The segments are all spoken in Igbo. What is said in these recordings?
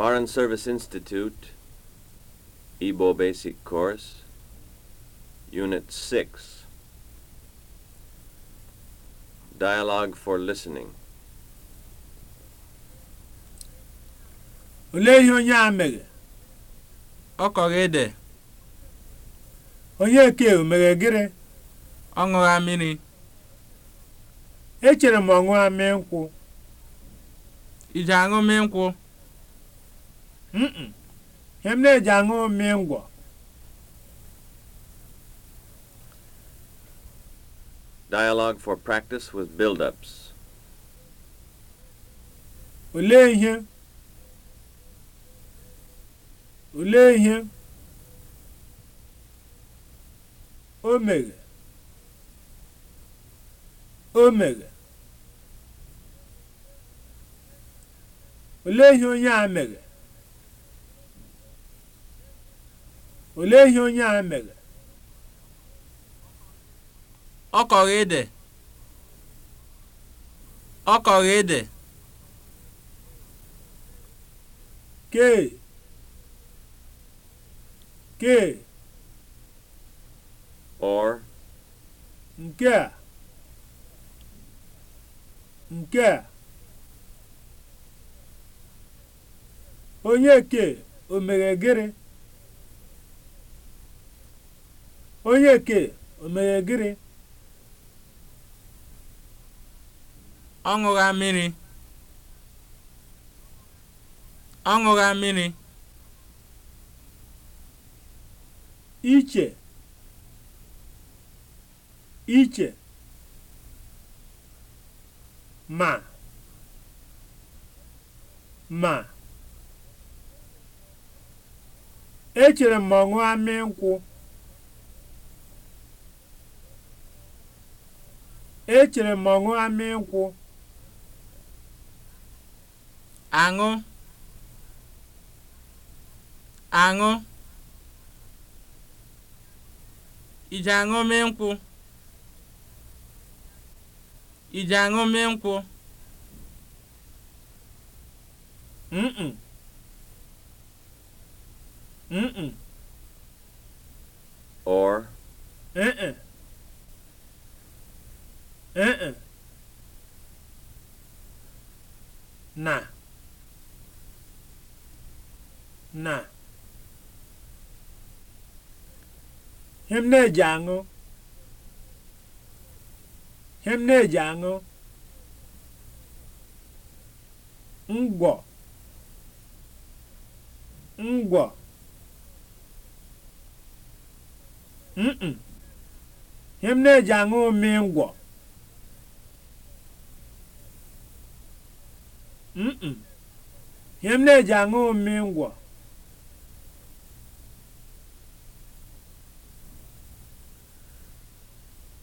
Foreign Service Institute, Igbo Basic Course, Unit 6. Dialogue for Listening. Olee ihe onye a mere? Ọ kọrọ ede. Onye ke mere gịrị? Ọ ṅụra mmiri. Echere m ọ ṅụra mmiri nkwụ. Ị aṅụ mmiri nkwụ? ihe m na-eji aṅụ mmiri Dialog Dialogue for practice with build-ups. Olee ihe? Olee ihe? O mere. O mere. Olee ihe onye a mere? olee ihe onye a mere ọ kọrọ ede ọ kọrọ ede kee kee or nke a nke a onye ke o mere gịrị onye ke o mere gịnị ọ ṅụgha mmiri ọ ṅụgha mmiri iche iche ma ma echere m ma amị nkwụ echere m ọṅụ ama nkwụ aṅụ aṅụ ije aṅụ nkwụ aṅụ mm nkwụ mm mm or mm mm ee na na ihe na-eji aṅụ ihe na-eji aṅụ ngwọ ngwọ mm him na-eji aṅụ mmiri ngwọ ihe m na-eji aṅụ mmiri ngwọ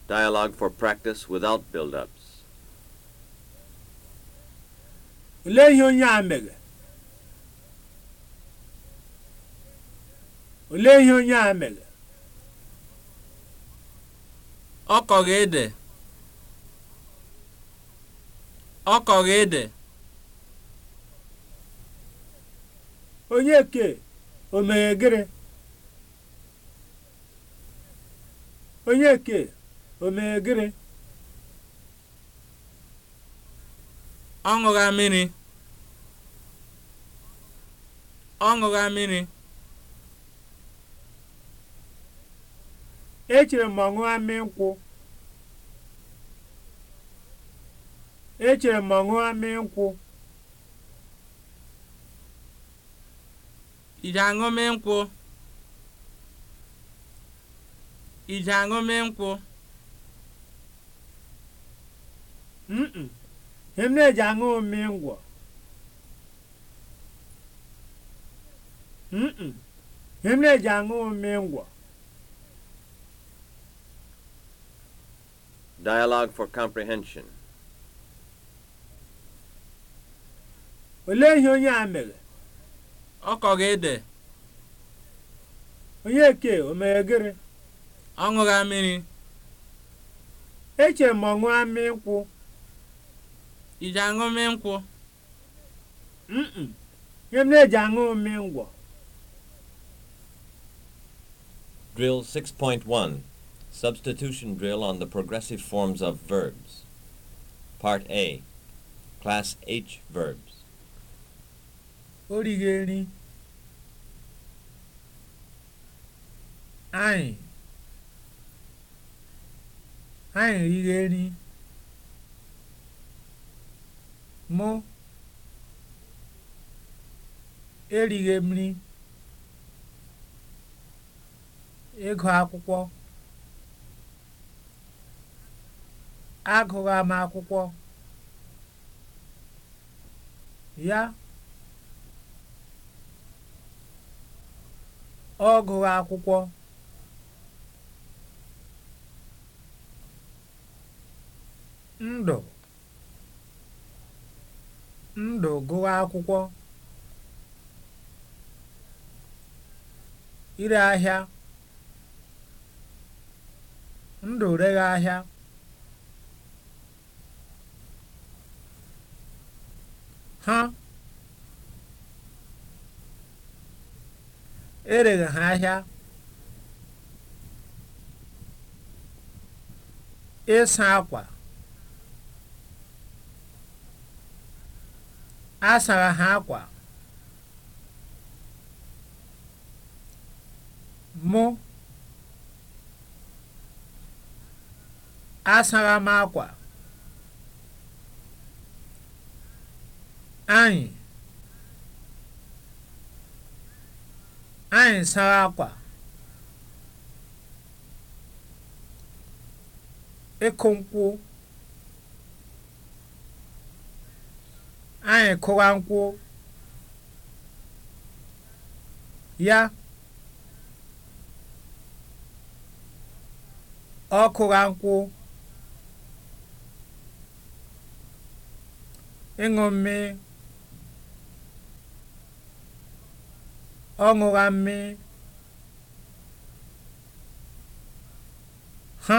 Dialogue for practice without build-ups. Olee ihe onye a mere? Olee ihe onye a mere? Ọ kọrọ ede. Ọ kọrọ ede. onye ke o gịrị onye ke ọ ṅụgha mmiri ọ mmiri echere m ọṅụgha mmiri nkwụ echere m ọṅụgha mmiri nkwụ ije aṅụmị nkwụ ije aṅụmị nkwụ mm na-eji aṅụ mmiri ngwọ mm na-eji aṅụ Dialogue for comprehension. Olee ihe onye a mere? ọ kọghị ede eke, o mere ọ ṅụgha mmiri eche m ọṅụ amị nkwụ iji aṅụ mmị nkwụ ihe m na-eji aṅụ mmị ngwọ Drill 6.1 Substitution drill on the progressive forms of verbs. Part A Class H verbs. Origeri. anyị anyị righi nri mụ erighi m nri ịgụ akwụkwọ agụghị m akwụkwọ ya ọ gụghị akwụkwọ ndụ ndụ gụọ akwụkwọ ire ahịa ndụ reghe ahịa ha ereghị ha ahịa ịsa akwa a sara ha akwa mụ asara m akwa anyị anyị sara akwa ịkụ nkwụ anyị kụwa nkwụ ya ọ kụwa nkwụ ịṅụ mmiri ọ ṅụra mmiri ha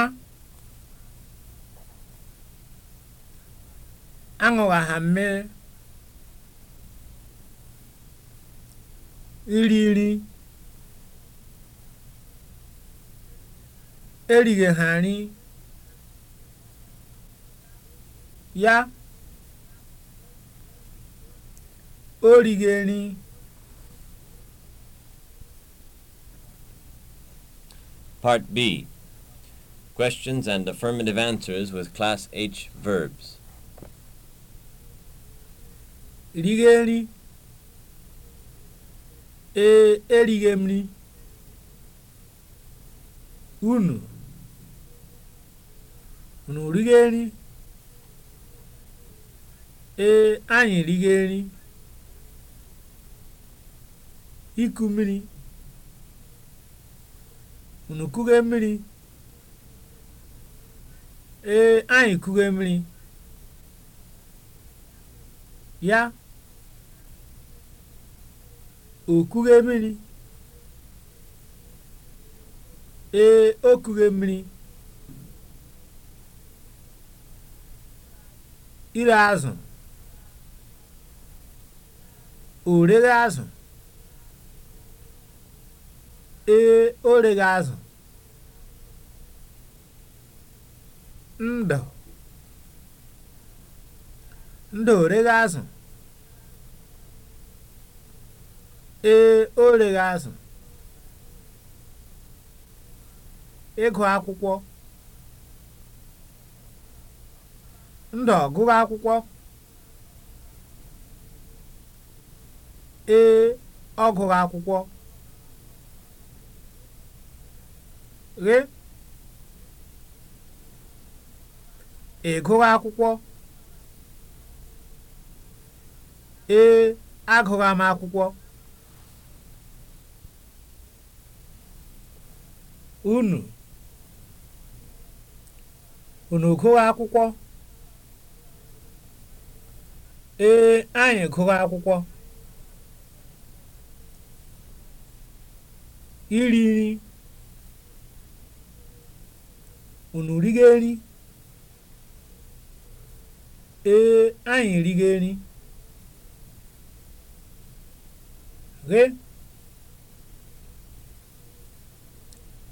aṅụwa ha mmiri iriri erigheghari ya o righeri Part B Questions and affirmative answers with Class H verbs. Righeri. ee erighi m nri unu unu righe nri ee anyị righe nri iku mmiri unu kughe mmiri ee anyị kughe mmiri ya okughe mmiri ee okughe mmiri ire azụ o azụ ee o azụ ndụ ndụ o reghe azụ e, Ee, o rere azụ. Ịgụ akwụkwọ. Ndọ gụrụ akwụkwọ. Ee, ọ gụrụ akwụkwọ. Ghe. Ị gụrụ akwụkwọ. Ee, agụrụ m akwụkwọ. unu unu gụọ akwụkwọ ee anyị gụọ akwụkwọ iri nri unu rigo nri ee anyị rigo nri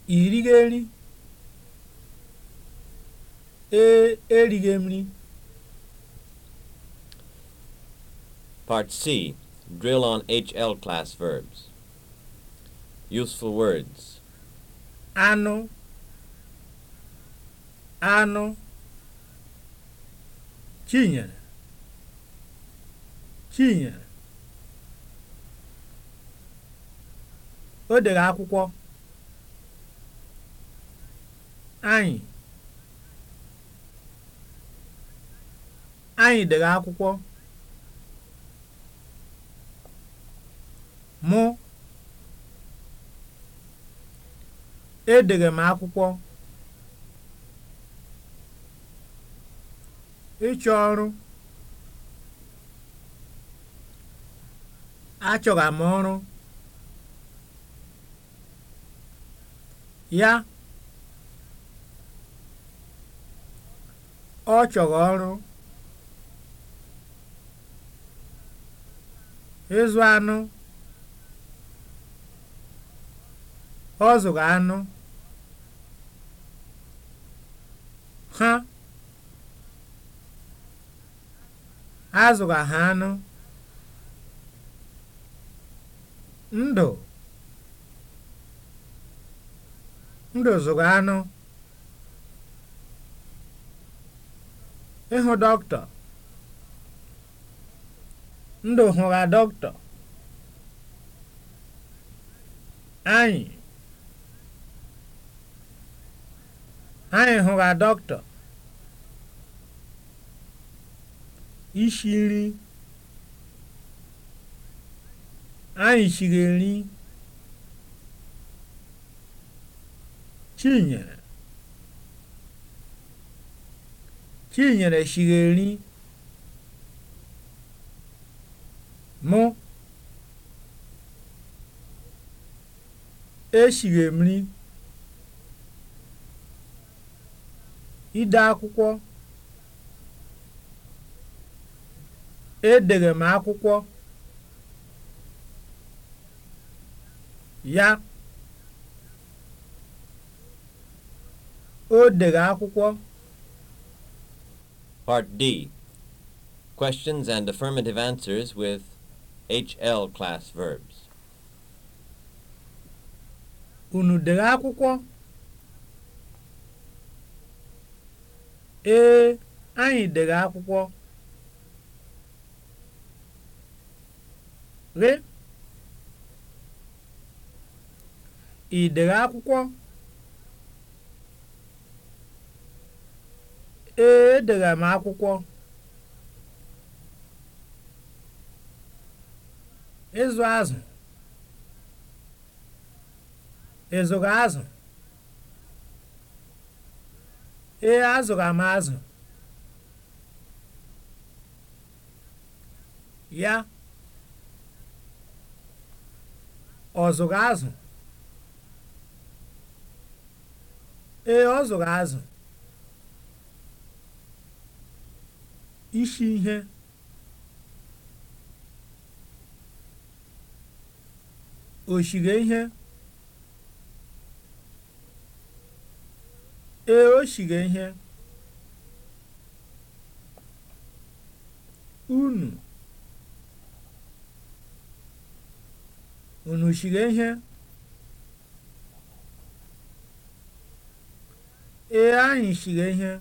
ìrìghiri ee nri Part C Drill on HL class verbs. Useful words. Anụ. Anụ. Chinyere. Chinyere. O dere akwụkwọ. Anyị Anyị dere akwụkwọ. Mụ edere m akwụkwọ. Ịchọ ọrụ achọra m ọrụ ya ọ chọrọ ọrụ ịzụ anụ ọ zụrụ anụ ha a ha anụ ndụ ndụ zụrụ anụ ịhụ dọkịta ndụ hụra dọkịta anyị anyị hụra dọkịta ishi nri anyị shiri nri chinyere Chinyere siri nri m. Esiri m Ide akwụkwọ. Edere m akwụkwọ. Ya. O dere akwụkwọ. Part D Questions and affirmative answers with HL class verbs. Unu dere akwụkwọ? Ee, anyị dere akwụkwọ. Re? Ị dere akwụkwọ? Ee, edere m akwụkwọ. Ịzụ azụ. ịzụrụ azụ? Ee, azụrụ m azụ. Ya? Ọ zụrụ azụ? Ee, ọ zụrụ azụ. isi ihe oshige ihe ee shige ihe unu unu shige ihe ee anyị shige ihe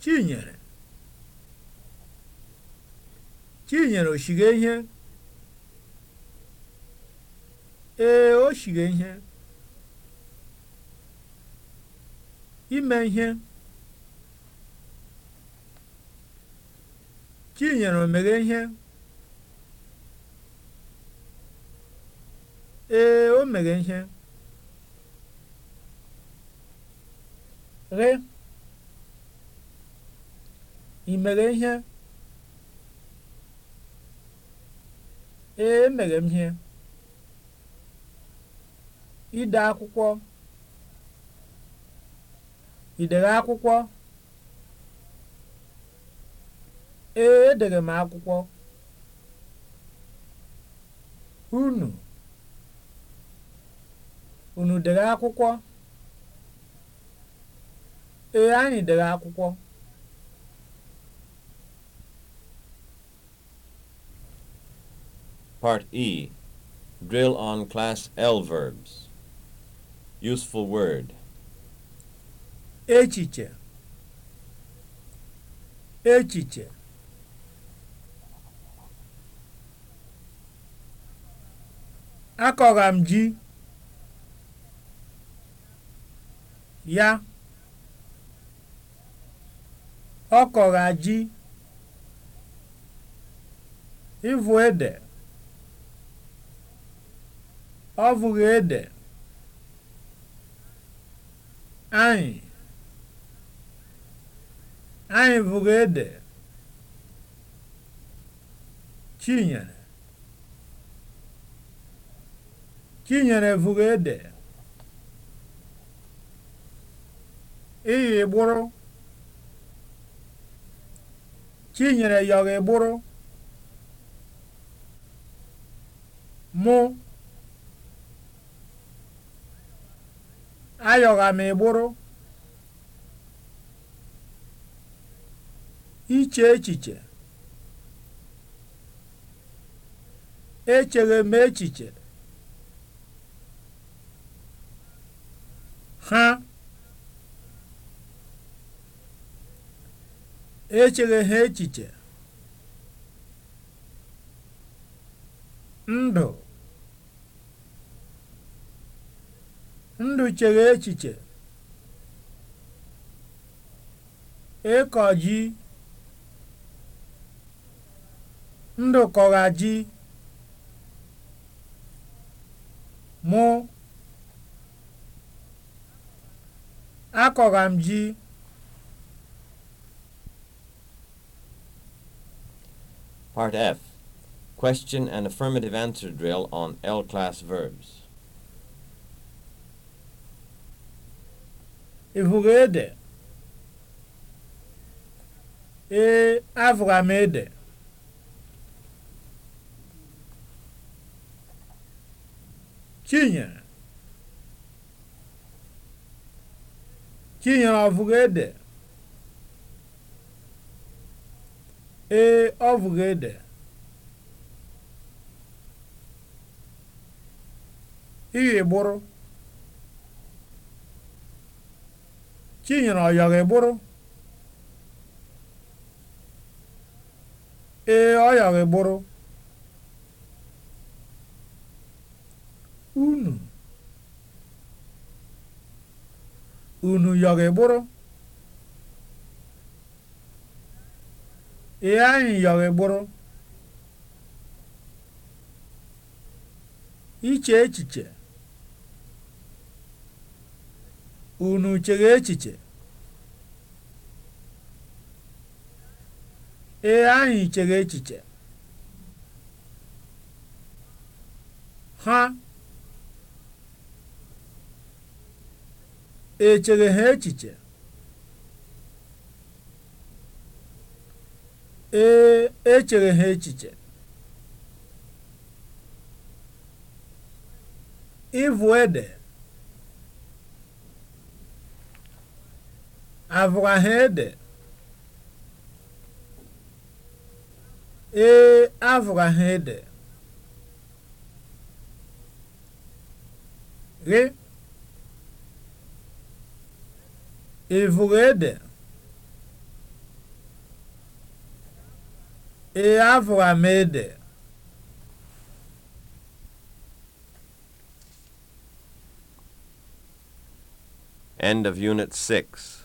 Chinyere Chinyere o ihe ee o ihe ime ihe Chinyere o ihe ee o meghe ihe ghe Ị mere ihe? Ee, emere m ihe. Ị akwụkwọ? Ị akwụkwọ? Ee, edere m akwụkwọ. Unu? Unu dere akwụkwọ? Ee, anyị dere akwụkwọ. Part E Drill on Class L verbs. Useful word. Echiche. Echiche. Akọgha ji ya ọ kọgha ji ịvụ ede ọ bụghị ede anyị anyị bụghị ede chinyere chinyere bụghị ede iyi gbụrụ chinyere yọghị gbụrụ mụ ayọgha m ịgbụrụ iche echiche echeghe m echiche ha echeghe ha echiche ndụ ndụ chere echiche ịkọ ji ndụ kọra ji mụ akọra m ji Part F Question and affirmative answer drill on L class verbs. vụghị e, ede? Ee, avụra m ede. Chinyere? Chinyere ọ vụghị ede? Ee, ọ vụghị ede. Iri gbụrụ. Chinyere ọ yọrọ ịgbụrụ? Ee, ọ gburu ịgbụrụ. Unu. Unu yọrọ ịgbụrụ? Ee, anyị yọrọ ịgbụrụ. Iche echiche. unu chere echiche ee anyị chere echiche ha echere ha echiche ee echere ha echiche ịvụ ede avarrede ee avarrede re evorede e avramede End of Unit 6.